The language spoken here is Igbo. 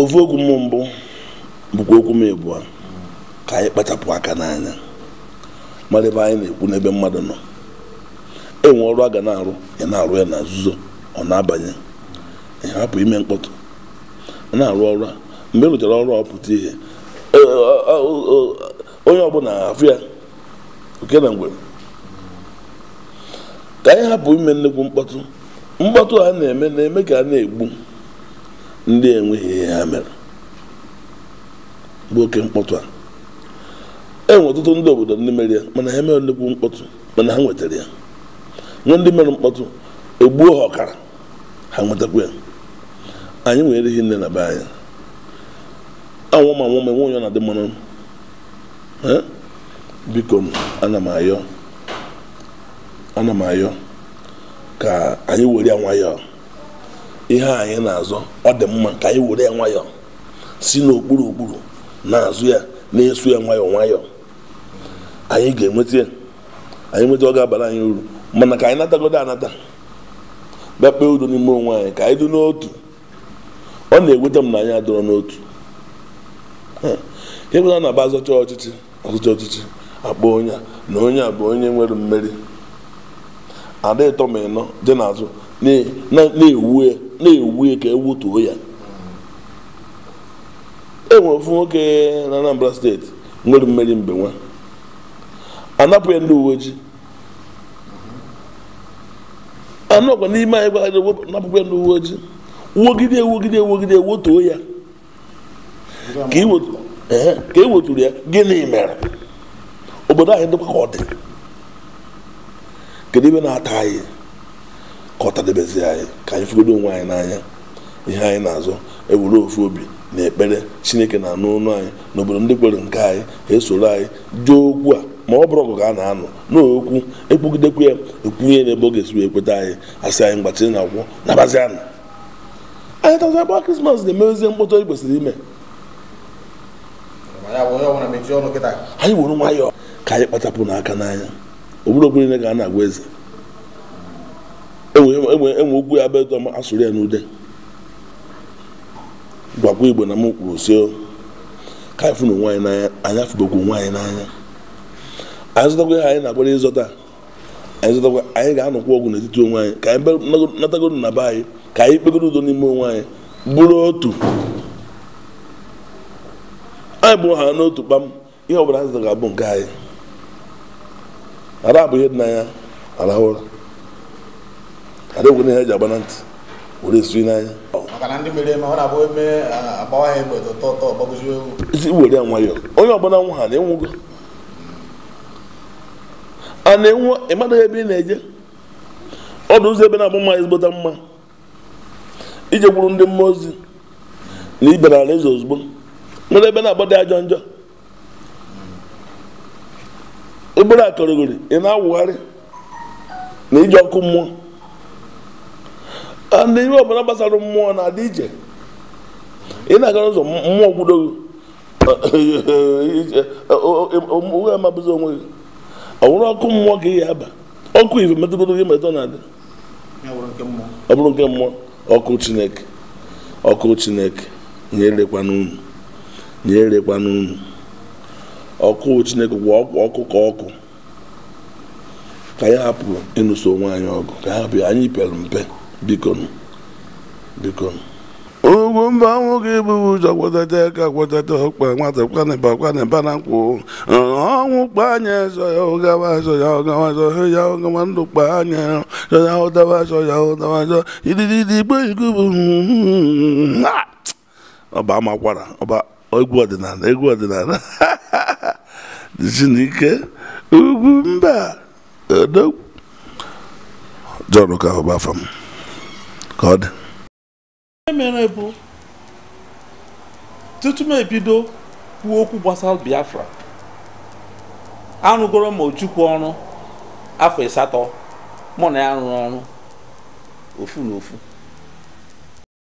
ovu okwu m mbụ bụkwa okwu m ebu ka anyị kpachapụ aka n'anya mara ebe anyị na-ekwu n'ebe mmadụ nọ enwe ọrụ a ga na-arụ ya na-arụ ya na nzuzo ọ na-abanye hapụ ime mkpọtụ na-arụ ọrụ a mgbe e rụchara ọrụ ọ pụta ihe onye ọbụla afụ ya oke na ngwere ka anyị hapụ ime nnukwu mkpọtụ mkpọtụ a na-eme na-eme ka a na-egbu ndị enweghị ihe ha mere bụ oke mkpọtụ a enwere ọtụtụ ndị obodo ndị mere ya mana ha emeghị nnukwu mkpọtụ mana ha nwetara ya nwe ndị mere mkpọtụ egbuo ha ọkara ha nwetakwa ya anyị nwere ihe nne na be anyị anwụma anwụma enwe onye na-adị mmanụ biko m ana m ayọ ana m ayọ ka anyị were ya nwayọọ ihe anyị na-azọ ọ dị mma ka anyị were ya nwayọọ si n'okpuru okpuru na-azụ ya na-eso ya nwayọọ nwayọọ anyị ga-enweta ya anyị nweta ọ ga-abara anyị uru mana ka anyị natagodo anata bịa udo n'ime onwe anyị ka anyị dị n'otu ọ na-eweta m na anyị adọrọ n'otu ịbụla e na-aba azọcha ọchịchị azọcha ọchịchị akpọ onye na onye a bụ onye nwere mmeri ada ịtọ ma ịnọ dị n'azụ na-ewu ya na-ewu ka ewutuo ya enwere ofu nwoke na Anambra steeti nwere mmeri mbenwa anapụ ya ndị uwe ojii anọkwa n'ime anyị gwara napụkwa ndị uwe ojii wogide wogide wogide wotuo ya ka eweturu e ya gịnị mere obodo anyị dịkwa ka ọ dị kedu ibe na-ata anyị ka ọ anyị ka anyị fụgodo onwe anyị n'anya ihe anyị na-azụ ewere ofu obi na ekpere chineke na-anụ ụnụ anyị n'obodo ndị kwere nke anyị ha esoro anyị dị okwu a ma ọ bụrụ ọgụ ka a na-anọ n'okwu ekpugidekwu ya ekwunye n'ebe ọ ga-esi wee kweta anyị asị anyị mgbachiri na akwụkwọ na anụ anyị tazi akpa krismas na-emewezie mkpọtụ anyị kwesịrị ime anyị were nwayọọ ka anyị kpachapụ n'aka n'anya obodo okwere ga a na-agwa eze enwe ugwu ya bụ edo m asụrụ ya n'ude gwakwa igbo na m kwuru si ka anyị fụrụ nwaanyị n'anya anyị afụbekwu nwaanyị n'anya anyị zụtakwa ihe anyị na-agbara ịzọta anyị zụtakwa anyị ga-anọkwa ọgwụ n'etiti onwe anyị ka anyị natagoro na be anyị ka anyị kpegoro udo n'ime onwe anyị bụrụ otu anyị bụrụ ha n'otu kpam ihe ọ bụla anyị zụtara ga-abụ nke anyị ara bụ ihe dị n'anya arahụ ụra adịghị ihe eji agba na ntị were esu n'anya isi were ya nwayọọ onye ọbụla nwa ha na-enwugo a na-enwe ya ebe ị na-eje ọdụ ụzọ ebe na-abụ mma ezigbota mma ije gwuru ndị mmụọ ozi na ibe na ala eze ozugbo nwere ebe na-agbado ajọ njọ ebere akọrọgori ị na-awụgharị na ije ọkụ mmụọ na ihe ọbụla gbasara mmụọ na-adị ije ị na-aga n'ụzọ mmụọ gwudogo onwe amabụzi onwe gị ọnwụrụ ọkụ mmụọ ka ihe ya aba ọkụ ife metụgoro gị metụ na-adị ọ bụrụ nke mmụọ ọkụ chineke ọkụ chineke nyerekwa n'unu nyerekwa n'unu ọkụ chineke gwụ ọkụ ka ọkụ ka ya hapụ ịnụso onwe anyị ọgụ ka ya hapụ anyị pere mpe biko biko ugwu mba nwoke ebughị ụzọ kwadata aka ọkpa nwata kwanịba kwanịba na nkwụ ọnwụ kpa anya zọ ya ụgawa zọ ya ụgawa ya ụgawa ndụ kpa anya ya ụdawa ya ụdawa igbo ọba amakwara ọba egwu ọdịnala egwu ọdịnala dizinike ugwu mba odogwu jọrọ ka ọba ka ọ dị bụ tutu m ebido kwuo okwu gbasara Biafra arụgoro m Ojukwu ọrụ afọ asatọ mụ na ya rụrụ ọrụ ofu na ofu